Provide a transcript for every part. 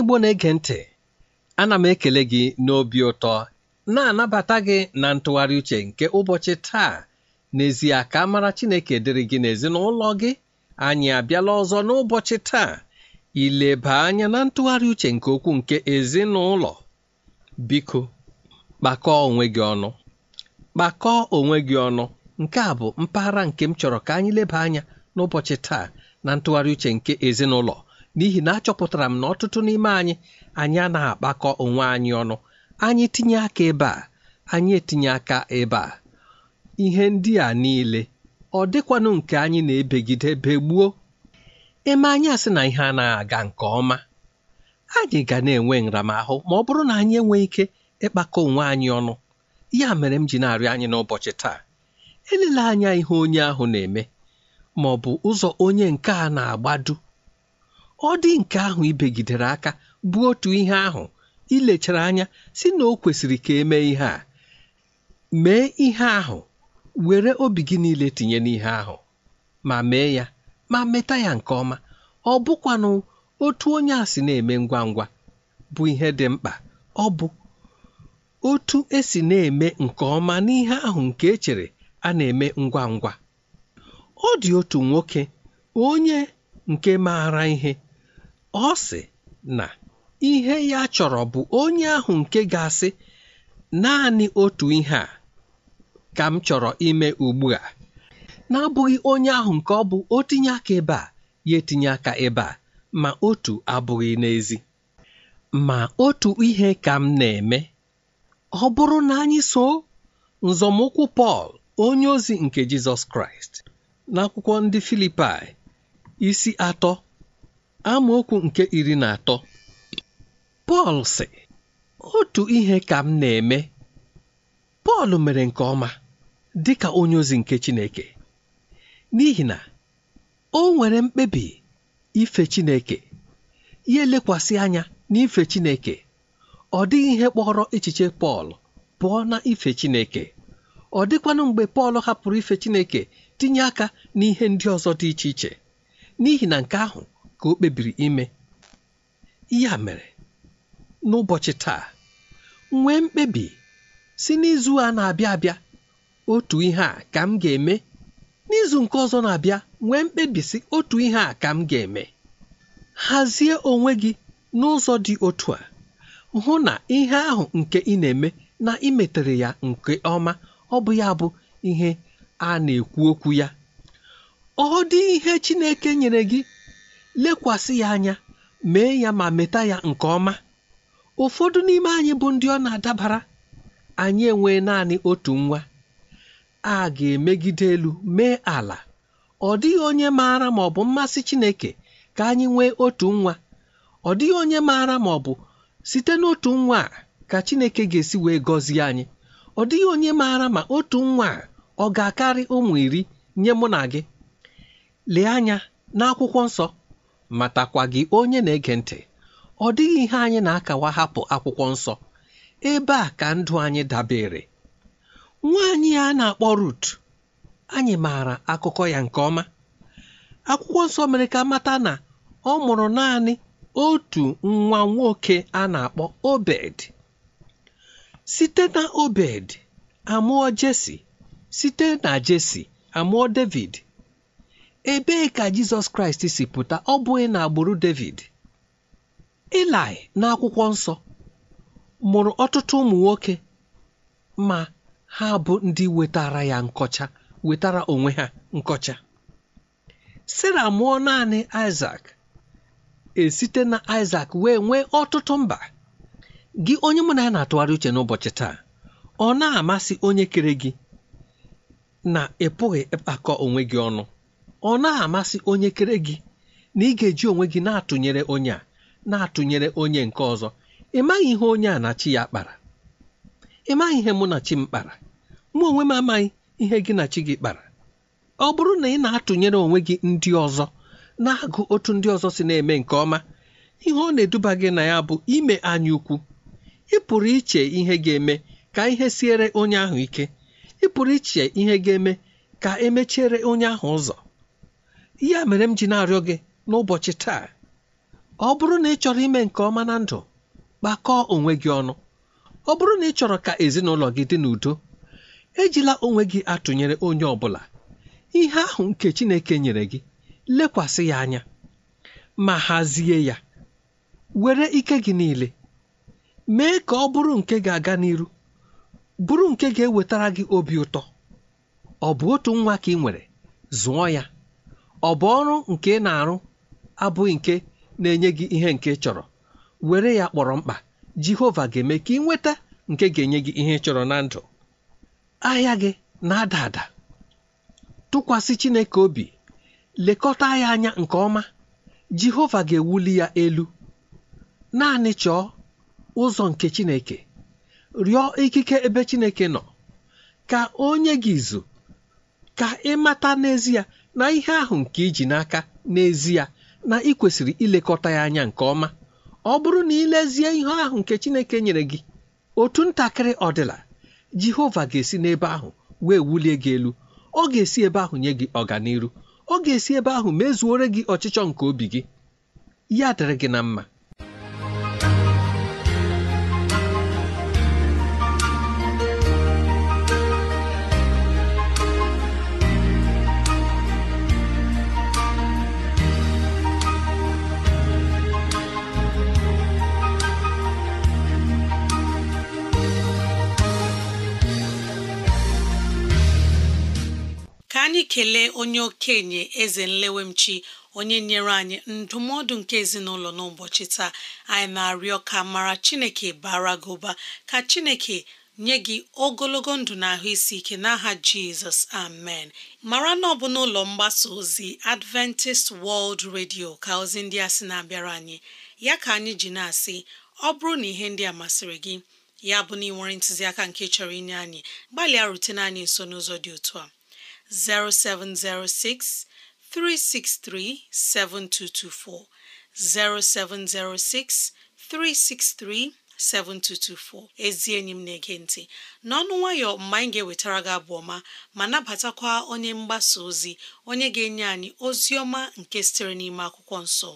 Igbo na-ege ntị ana m ekele gị n'obi ụtọ na-anabata gị na ntụgharị uche nke ụbọchị taa n'ezie ka mara Chineke dịrị gị n'ezinụlọ gị anyị abịala ọzọ n'ụbọchị taa ileba anya na ntụgharị uche nke okwu nke ezinụlọ biko kpakọọ onwe gị ọnụ kpakọọ onwe gị ọnụ nke a bụ mpaghara nke m chọrọ ka anyị leba anya n'ụbọchị taa na ntụgharị uche nke ezinụlọ n'ihi na achọpụtara m na ọtụtụ n'ime anyị anyị a na-akpakọ onwe anyị ọnụ anyị tinye aka ebe a anyị etinye aka ebe a ihe ndị a niile ọ dịkwanụ nke anyị na-ebegide begbuo eme anyị asị na ihe anaghị aga nke ọma anyị ga na-enwe nramahụ ma ọ bụrụ na anyị enweghị ike ịkpakọ onwe anyị ọnụ ya mere m ji na-arịọ anyị n'ụbọchị taa elela anya ihe onye ahụ na-eme ma ọ bụ ụzọ onye nke a na agbado ọ dị nke ahụ ibegidere aka bụ otu ihe ahụ ilechara anya si na o kwesịrị ka emee ihe a mee ihe ahụ were obi gị niile tinye n'ihe ahụ ma mee ya ma meta ya nke ọma ọ bụkwanụ otu onye a si na-eme ngwa ngwa bụ ihe dị mkpa ọ bụ otu esi na-eme nke ọma n'ihe ahụ nke echere a na-eme ngwa ngwa ọ dị otu nwoke onye nke maara ihe ọ sị na ihe ya chọrọ bụ onye ahụ nke ga-asị naanị otu ihe a ka m chọrọ ime ugbu a n'abụghị onye ahụ nke ọ bụ o tinye aka ebe a ya etinye aka ebe a ma otu abụghị n'ezi ma otu ihe ka m na-eme ọ bụrụ na anyị so nzọmụkwụ Pọl onye ozi nke Jizọs Kraịst n'akwụkwọ ndị Filipaị isi atọ amaokwu nke iri na atọ Pọl sị otu ihe ka m na-eme Pọl mere nke ọma dị ka onye ozi nke Chineke n'ihi na o nwere mkpebi ife Chineke ya elekwasị anya n'ife Chineke ọ dịghị ihe kpọrọ echiche Pọl pụọ na ife Chineke ọ dịkwanụ mgbe Pọl hapụrụ ife Chineke tinye aka n'ihe ndị ọzọ dị iche iche n'ihi na nke ahụ ka o kpebiri ime ya mere n'ụbọchị taa nwee mkpebi si n'izu a na-abịa abịa otu ihe a ka m ga-eme n'izu nke ọzọ na-abịa nwee mkpebi si otu ihe a ka m ga-eme hazie onwe gị n'ụzọ dị otu a hụ na ihe ahụ nke ị na-eme na imetere ya nke ọma ọ bụ ya bụ ihe a na-ekwu okwu ya ọ dị ihe Chineke nyere gị lekwasị ya anya mee ya ma meta ya nke ọma ụfọdụ n'ime anyị bụ ndị ọ na-adabara anyị enwee naanị otu nwa a ga-emegide elu mee ala ọ dịghị onye maara ma ọ bụ mmasị Chineke ka anyị nwee otu nwa ọ dịghị onye maara ma ọ bụ site n'otu nwa a ka Chineke ga-esi wee gọzie anyị ọ dịghị onye maara ma otu nwa a ọ ga-akarị ụmụ iri nye mụ na gị lee anya n'akwụkwọ nsọ matakwa gị onye na-ege ntị ọ dịghị ihe anyị na-akawa hapụ akwụkwọ nsọ ebe a ka ndụ anyị dabere nwaanyị a na-akpọ Rut anyị maara akụkọ ya nke ọma akwụkwọ nsọ mere ka mata na ọ mụrụ naanị otu nwa nwoke a na-akpọ Obed site na Obed amụọ Jesi site na Jesi amụọ David ebee ka jizọs kraịst si pụta ọ bụghị na agbụrụ david ilaị n'akwụkwọ nsọ mụrụ ọtụtụ ụmụ nwoke ma ha bụ ndị wetara ya nkọcha wetara onwe ha nkọcha sara mụọ naanị isak esite na isak wee nwee ọtụtụ mba gị onye mụ na ya na-atụgharị uche n'ụbọchị taa ọ na-amasị onye kere gị na ị pụghị ịkpakọ onwe gị ọnụ ọ na-amasị onye kere gị na ị ga-eji onwe gị na-atụnyere onye a na-atụnyere onye nke ọzọ ị maghị ihe onye a na chi ya kpara ị maghị ihe mụ na chi m kpara mụ onwe m amaghị ihe gị na chi gị kpara ọ bụrụ na ị na-atụnyere onwe gị ndị ọzọ na-agụ otu ndị ọzọ si na-eme nke ọma ihe ọ na-eduba gị na ya bụ ime anya ukwu ị pụrụ iche ihe ga-eme ka ihe siere onye ahụ ike ị pụrụ iche ihe ga-eme ka emechiere onye ahụ ụzọ Ya mere m ji na-arịọ gị n'ụbọchị taa ọ bụrụ na ị chọrọ ime nke ọma na ndụ kpakọọ onwe gị ọnụ ọ bụrụ na ị chọrọ ka ezinụlọ gị dị n'udo ejila onwe gị atụnyere onye ọ bụla ihe ahụ nke Chineke nyere gị lekwasị ya anya ma hazie ya were ike gị niile mee ka ọ bụrụ nke ga-aga n'iru bụrụ nke ga-ewetara gị obi ụtọ ọ bụ otu nwa ka ị nwere zụọ ya ọ bụ ọrụ nke ị na-arụ abụghị nke na-enye gị ihe nke chọrọ were ya kpọrọ mkpa jehova ga-eme ka ị nweta nke ga-enye gị ihe ị chọrọ na ndụ ahịa gị na-ada ada tụkwasị chineke obi lekọta ya anya nke ọma jehova ga-ewuli ya elu naanị chọọ ụzọ nke chineke rịọ ikike ebe chineke nọ ka onye gị izu ka ị mata n'ezie na ihe ahụ nke iji n'aka n'ezie na ị kwesịrị ilekọta ya anya nke ọma ọ bụrụ na ilezie ihe ahụ nke Chineke nyere gị otu ntakịrị ọdịla Jehova ga-esi n'ebe ahụ wee wulie gị elu ọ ga-esi ebe ahụ nye gị ọganiru ọ ga-esi ebe ahụ mezuore gị ọchịchọ nke obi gị ya dịrị gị na mma anyị kelee onye okenye eze nlewemchi onye nyere anyị ndụmọdụ nke ezinụlọ n'ụbọchị taa anyị na-arịọ ka mara chineke bara gị ụba ka chineke nye gị ogologo ndụ na ahụ isi ike n'aha jizọs amen mara na ọ bụ n'ụlọ mgbasa ozi adventist world radio ka ozi ndị a sị na-abịara anyị ya ka anyị ji na-asị ọ bụrụ na ihe ndị a masịrị gị ya bụ na ị nwere ntụziaka nke chọrọ inye anyị gbalịa rutene anyị nso n'ụzọ dị otu a 0706 363 7224 0706 363 7224 ezi enyi m na-ege ntị n'ọnụ nwayọ mgbe anyị ga-ewetara gị abụ ọma ma nabatakwa onye mgbasa ozi onye ga-enye anyị ozi ọma nke sitere n'ime akwụkwọ nso.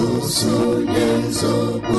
nzuzo na nzọpụ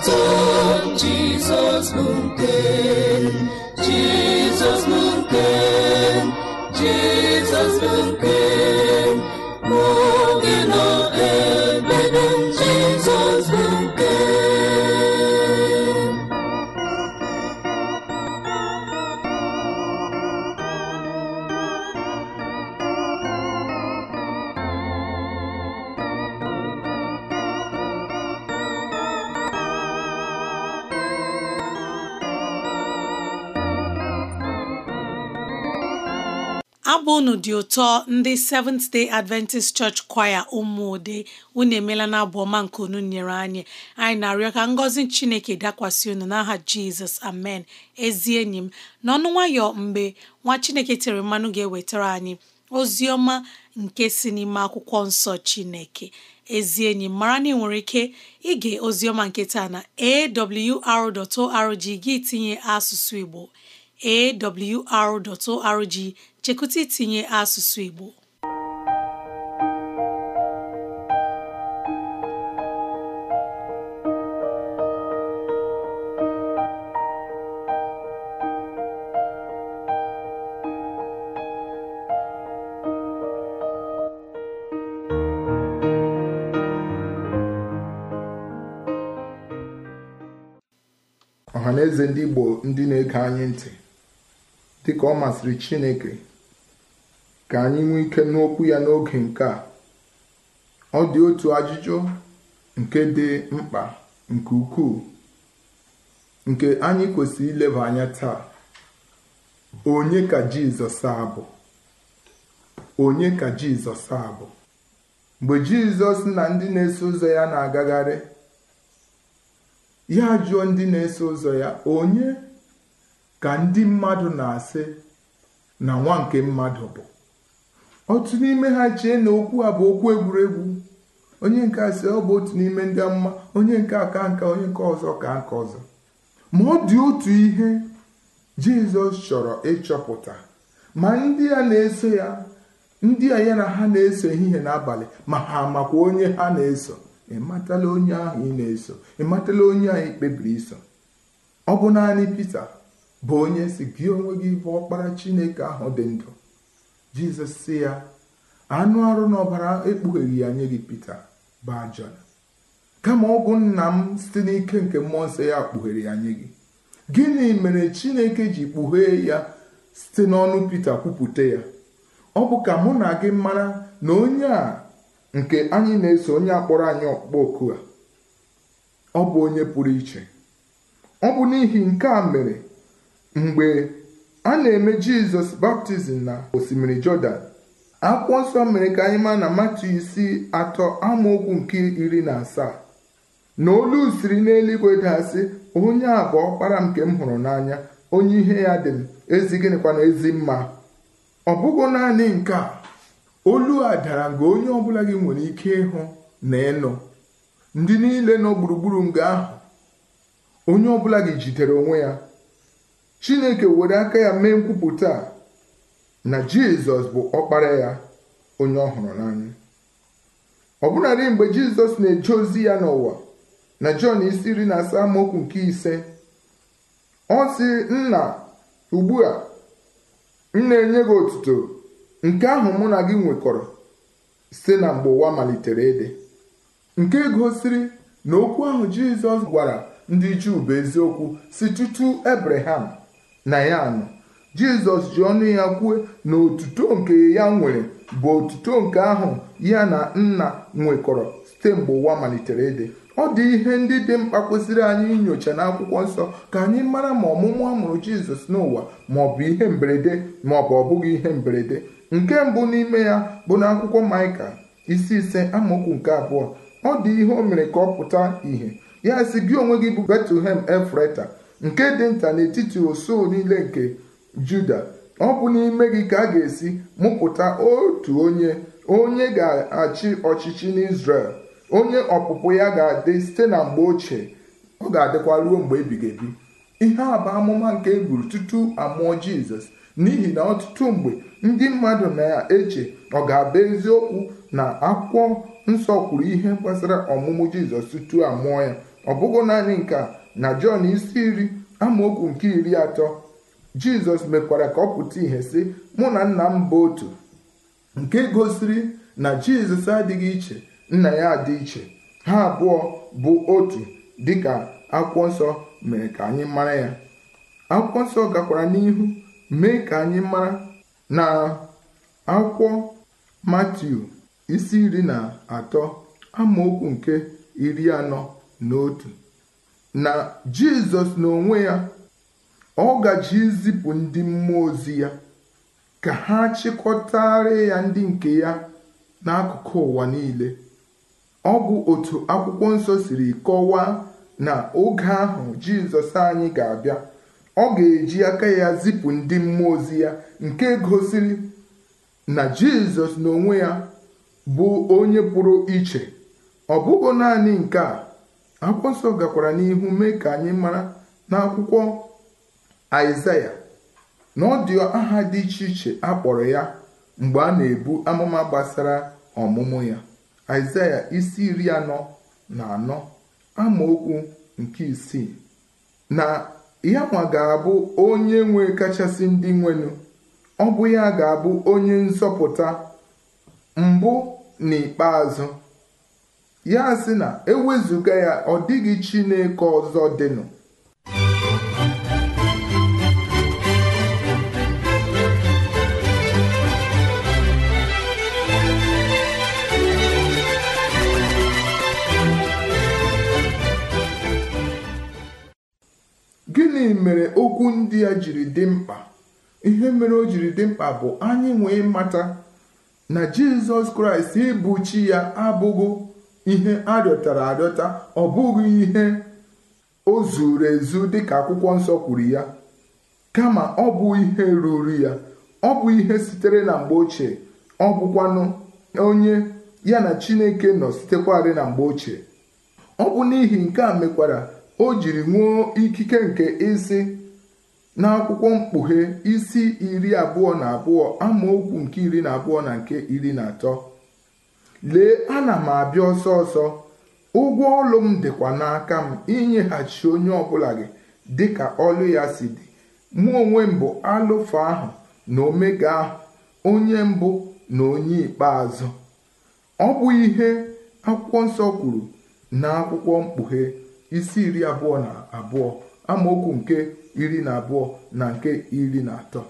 jesus jesus nke jesus bụ jesus jesus dị ụtọ ndị Seventh Day Adventist Church Choir ụmụde unu emela na abụ ọma nke unu nyere anyị anyị na-arịọ ka ngọzi Chineke dakwasị unu n'aha Jizọs amen ezi enyi m n'ọnụ nwayọ mgbe nwa Chineke tere mmanụ ga-ewetara anyị ozi ọma nke si n'ime akwụkwọ nsọ Chineke ezi enyi m mara na ị nwere ike ige ozi ọma nke taa na awr.org gị tinye asụsụ Igbo awr.org chekụta itinye asụsụ Igbo na eze ndị Igbo ndị na-ege anyị ntị dịka ọ masịrị Chineke ka anyị nwee ike n'okwu ya n'oge nke a ọ dị otu ajụjụ nke dị mkpa nke ukwuu nke anyị kwesịrị ileba anya taa onye ka jizọs abụ onye ka jizọs abụ mgbe jizọs na ndị na-eso ụzọ ya na-agagharị ya jụọ ndị na-eso ụzọ ya onye ka ndị mmadụ na-asị na nwa nke mmadụ bụ otu n'ime ha chee na okwu a bụ okwu egwuregwu onye nke a si ọ bụ otu n'ime ndị mma onye nke a ka nka onye nke ọzọ ka nke ọzọ ma ọ dị otu ihe jizọs chọrọ ịchọpụta ma ndị a na-eso ya ndị a ya na ha na-eso ehihie n'abalị ma ha makwa onye ha na-eso ịmatala onye ahụ ị na-eso ịmatala onye ahụ ikpebiri iso ọ bụ naanị pete bụ onye si gị onwe gị bụ ọkpara Chineke ahụ dị ndụ jizọs si ya anụ arụ na ọbara ekpugheghị ya nye gị pita bụ kama ọgwụ nna m site n'ike nke mmụọ nsọ ya kpughere ya nye gị gịnị mere chineke ji kpughee ya site n'ọnụ pita kwupụta ya ọ bụ ka mụ na gị mara na onye a nke anyị na-eso onye akpọrọ anyị ọkpụkpọ oku a ọ bụ onye pụrụ iche ọ bụ n'ihi nke a mere mgbe a na-eme jizọs baptizim na osimiri jọdan akwụkwọ nsọ mere ka anyị maa na matu isi atọ amaokwu nke iri na asaa na olu siri n'eluigwe dasị onye a bụ ọkpara nke m hụrụ n'anya onye ihe ya dị m ezi gịnịkwa na ezi mma ọ bụghị naanị nke a olu a dara nga onye ọbụla gị nwere ike ịhụ na ịnụ ndị niile nọ gburugburu nga ahụ onye ọbụla gị jidere onwe ya chineke were aka ya mee nkwupụta a na jizọs bụ ọkpara ya onye ọ hụrụ n'anya ọbụnadị mgbe jizọs na-eje ozi ya n'ụwa na jọn isi iri na asaa amaokwu nke ise ọ sị nna ugbu a m na-enye gị otuto nke ahụ mụ na gị nwekọrọ site na mgbe ụwa malitere ede nke gosiri na okwu ahụ jizọs gwara ndị juu bụ eziokwu si tutu ebraham na ya anọ. jizọs ji ọnụ ya kwue na otuto nke ya nwere bụ otuto nke ahụ ya na nna nwekọrọ site mgbe ụwa malitere ịdị ọ dị ihe ndị dị mkpa kwesịrị anyị inyocha n'akwụkwọ nsọ ka anyị mara ma ọmụmụ amụrụ jizọs n'ụwa ma ọ bụ ihe mberede ma ọ bụ ọ bụghị ihe mberede nke mbụ n'ime ya bụ na akwụkwọ maịka isi ise amaokwu nke abụọ ọ dị ihe o mere ka ọ pụta ìhè ya si gị onwe gị bụ betlehem efreta nke dị nta n'etiti osu niile nke juda ọ bụ n'ime gị ka a ga-esi mụpụta otu onye onye ga-achị ọchịchị n'Izrel onye ọpụpụ ya ga-adị site na mgbe ochie ọ ga-adịkwa ruo mgbe ebighị ebi ihe a bụ amụma nke eburu tutu amụọ Jizọs n'ihi na ọtụtụ mgbe ndị mmadụ na-eche ọ ga-abụ eziokwu na akwụkwọ nsọ kwuru ihe gbasara ọmụmụ Jizọs tutu amụọ ya ọ bụghị naanị nke a na jọn isi iri amaokwu nke iri atọ jizọs mekwara ka ọ pụta ihe sị mụ na nna m bụ otu nke gosiri na jizọs adịghị iche nna ya adị iche ha abụọ bụ otu dị ka akwụkwọ nsọ mere ka anyị mara ya akwụkwọ nsọ gakwara n'ihu mee ka anyị mara na akwụkwọ matiu isi iri na atọ amaokwu nke iri anọ na otu na jizọs n'onwe ya ọ gaji izipụ ndị mmụọ ozi ya ka ha chịkọtara ya ndị nke ya n'akụkụ ụwa niile ọ bụ otu akwụkwọ nsọ siri kọwaa na oge ahụ jizọs anyị ga-abịa ọ ga-eji aka ya zipụ ndị mmụọ ozi ya nke gosiri na jizọs n'onwe ya bụ onye pụrụ iche ọ bụghị naanị nke a akwụkwọ nsọ gakwara n'ihu mee ka anyị mara n'akwụkwọ aịzaya na ọ dị aha dị iche iche a kpọrọ ya mgbe a na-ebu amụma gbasara ọmụmụ ya aịzaya isi iri anọ na anọ amaokwu nke isii na ya nwa ga-abụ onye nwe kachasị ndị nwenu ọ bụ ya ga-abụ onye nzọpụta mbụ na ya sị na ewezụga ya ọ dịghị Chineke ọzọ dịnụ gịnị mere okwu ndị a jiri dị mkpa ihe mere o jiri dị mkpa bụ anyị nwee mata na Jizọs Kraịst ịbụ chi ya abụghị ihe a rịọtara arịọta ọ bụghị ihe o zuru ezu dịka akwụkwọ nsọ kwuru ya kama ọ bụ ihe ruru ya ọ bụ ihe sitere na mgbe ochie ọ bụkwanụ onye ya na Chineke nọ sitekwarị na mgbe ochie ọ bụ n'ihi nke a mekwara o jiri nwuo ikike nke isi n'akwụkwọ mkpughe isi iri abụọ na abụọ amaokwu nke iri na abụọ na nke iri na atọ lee ana m abịa ọsọ ọsọ ụgwọ ọlụ m dịkwa n'aka m inyeghachi onye ọbụla gị dịka ọlụ ya si dị mụ onwe mbụ bụ alụfa ahụ na omega ahụ onye mbụ na onye ikpeazụ ọ bụ ihe akwụkwọ nsọ kwuru na akwụkwọ mkpughe isi iri abụọ na abụọ amaokwu nke iri na abụọ na nke iri na atọ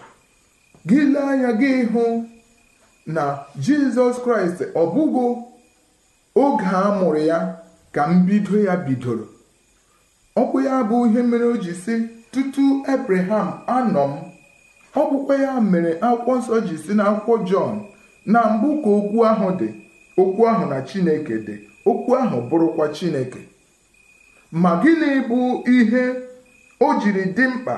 gị lee anya gị hụ na jizọs kraịst ọ bụghị oge a mụrụ ya ka mbido ya bidoro ọkpụ ya bụ ihe mere o ji si tutu ebraham anọ m ọ ya mere akwụkwọ nsọ ji si akwụkwọ jọn na mbụ ka okwu ahụ dị okwu ahụ na chineke dị okwu ahụ bụrụkwa chineke ma gịnị bụ ihe o jiri dị mkpa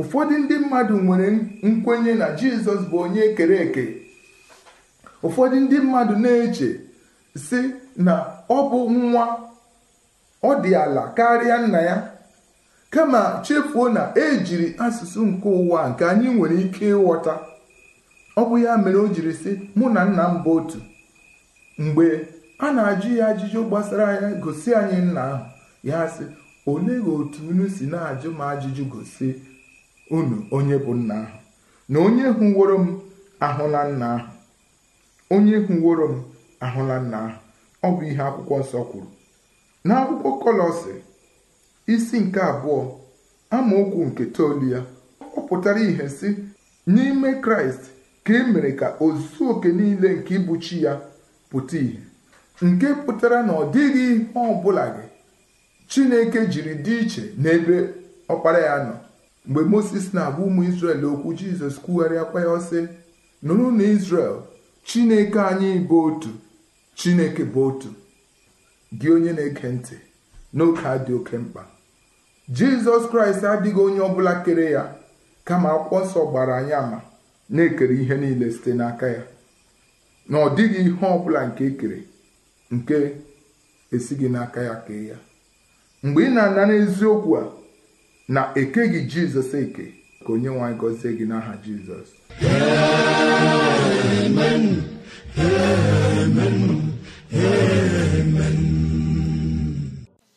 ụfọdụ ndị mmadụ nwere nkwenye na jizọs bụ onye e kere eke ụfọdụ ndị mmadụ na-eche si na ọ bụ nwa ọ dị ala karịa nna ya kama chefuo na ejiri asụsụ nke ụwa nke anyị nwere ike ịghọta ọ bụ ya mere o jiri si mụ na nna m bụ otu mgbe a na-ajụ ya ajụjụ gbasara ya gosi anyị nna ahụ ya sị olee otu unu si na-ajụ m ajụjụ gosi unu onye bụ nna ahụ na onye hụworo m ahụ nna ahụ onye hụworo m ahụla nna ahụ ọ bụ ihe akwụkwọ nsọ kwuru n'akwụkwọ kọlọsị isi nke abụọ amaokwu nke toolu ya ọ pụtara ihe si n'ime kraịst ka e mere ka ozu oke niile nke ịbụchi ya pụta ìhè nke pụtara na ọ dịghị ihe ọ bụla gị chineke jiri dị iche n'ebe ọkpara ya nọ mgbe moses na-agba ụmụ israel okwu jizọs kwugharịakwa ya ọsị nụrụ na israel Chineke anyị bụ otu Chineke bụ otu gị onye na-ege ntị n'oge a dị oke mkpa Jizọs Kraịst adịghị onye ọ bụla kere ya kama akwụkwọ nsọ gbara anyị ama na-ekere ihe niile site n'aka ya na ọ dịghị ihe ọbụla nke ekere nke esighị n'aka ya kee ya mgbe ị na ana n'eziokwu a na ekeghị Jizọs eke ka onye nwe anyị gọzie gị n'aha jizọs amen amen amen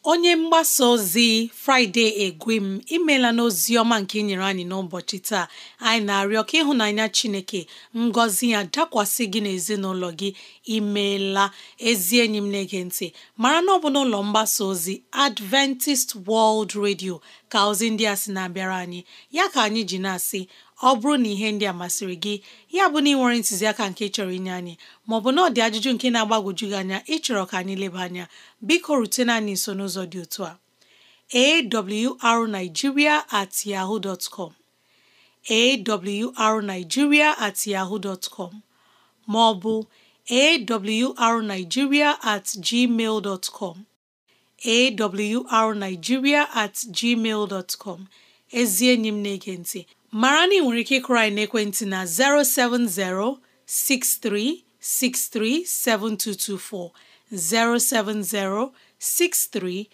onye mgbasa ozi fraịde egwem imela n'ozi ọma nke ị e nyere anyị n'ụbọchị taa anyị na-arịọ ka ịhụnanya chineke ngọzi ya dakwasị gị n'ezinụlọ gị imela ezi enyi m na-ege ntị mara na ọ bụ n'ụlọ mgbasa ozi adventist world radio ka ozi ndị a sị na-abịara anyị ya ka anyị ji na-asị ọ bụrụ na ihe ndị a masịrị gị ya bụ na ị nwere ntụziaka nke chọrọ inye anyị maọbụ na ọ dị ajụjụ nke na-agbagwoju gị anya ịchọrọ ka anyị leba anya biko rutena anyị nso n'ụzọ dị otu a awrnigeria at yahoo dot com awrnigeria at maọbụ arigiria at gmail dot at gmail dot ezi enyi m na-ege ntị mara na ị nwere ike ịkụrụ anyị n'ekwentị na 070 6363 7224 070 6363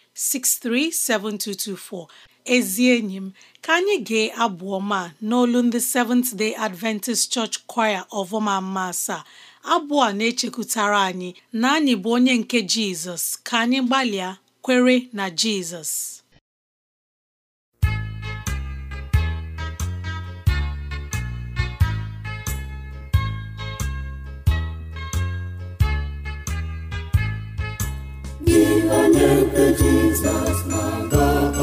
7224 ezi enyi m ka anyị gee abụ ọma n'olu ndị Seventh Day Adventist Church Choir of mma asaa abụ a na-echekwutara anyị na anyị bụ onye nke Jizọs ka anyị gbalịa kwere na Jizọs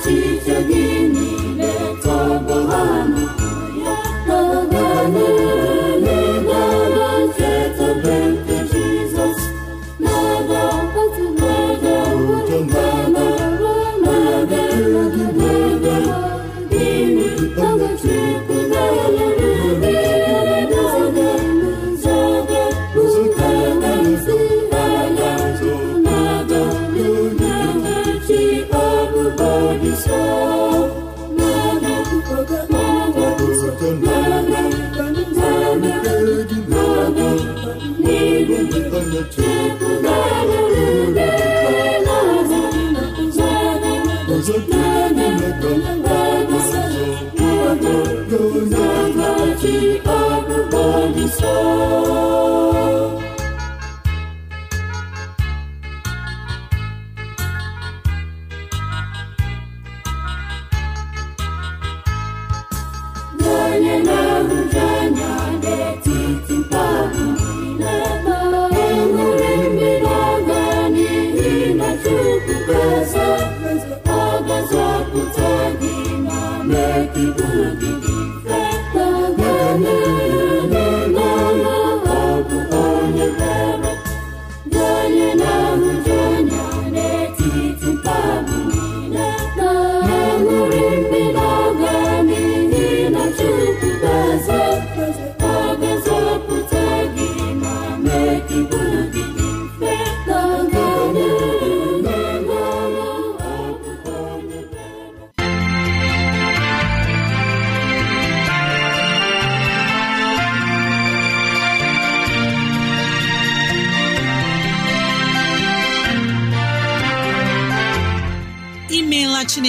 echiche gị niile tọgbọ ji ebube gị so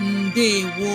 ndewo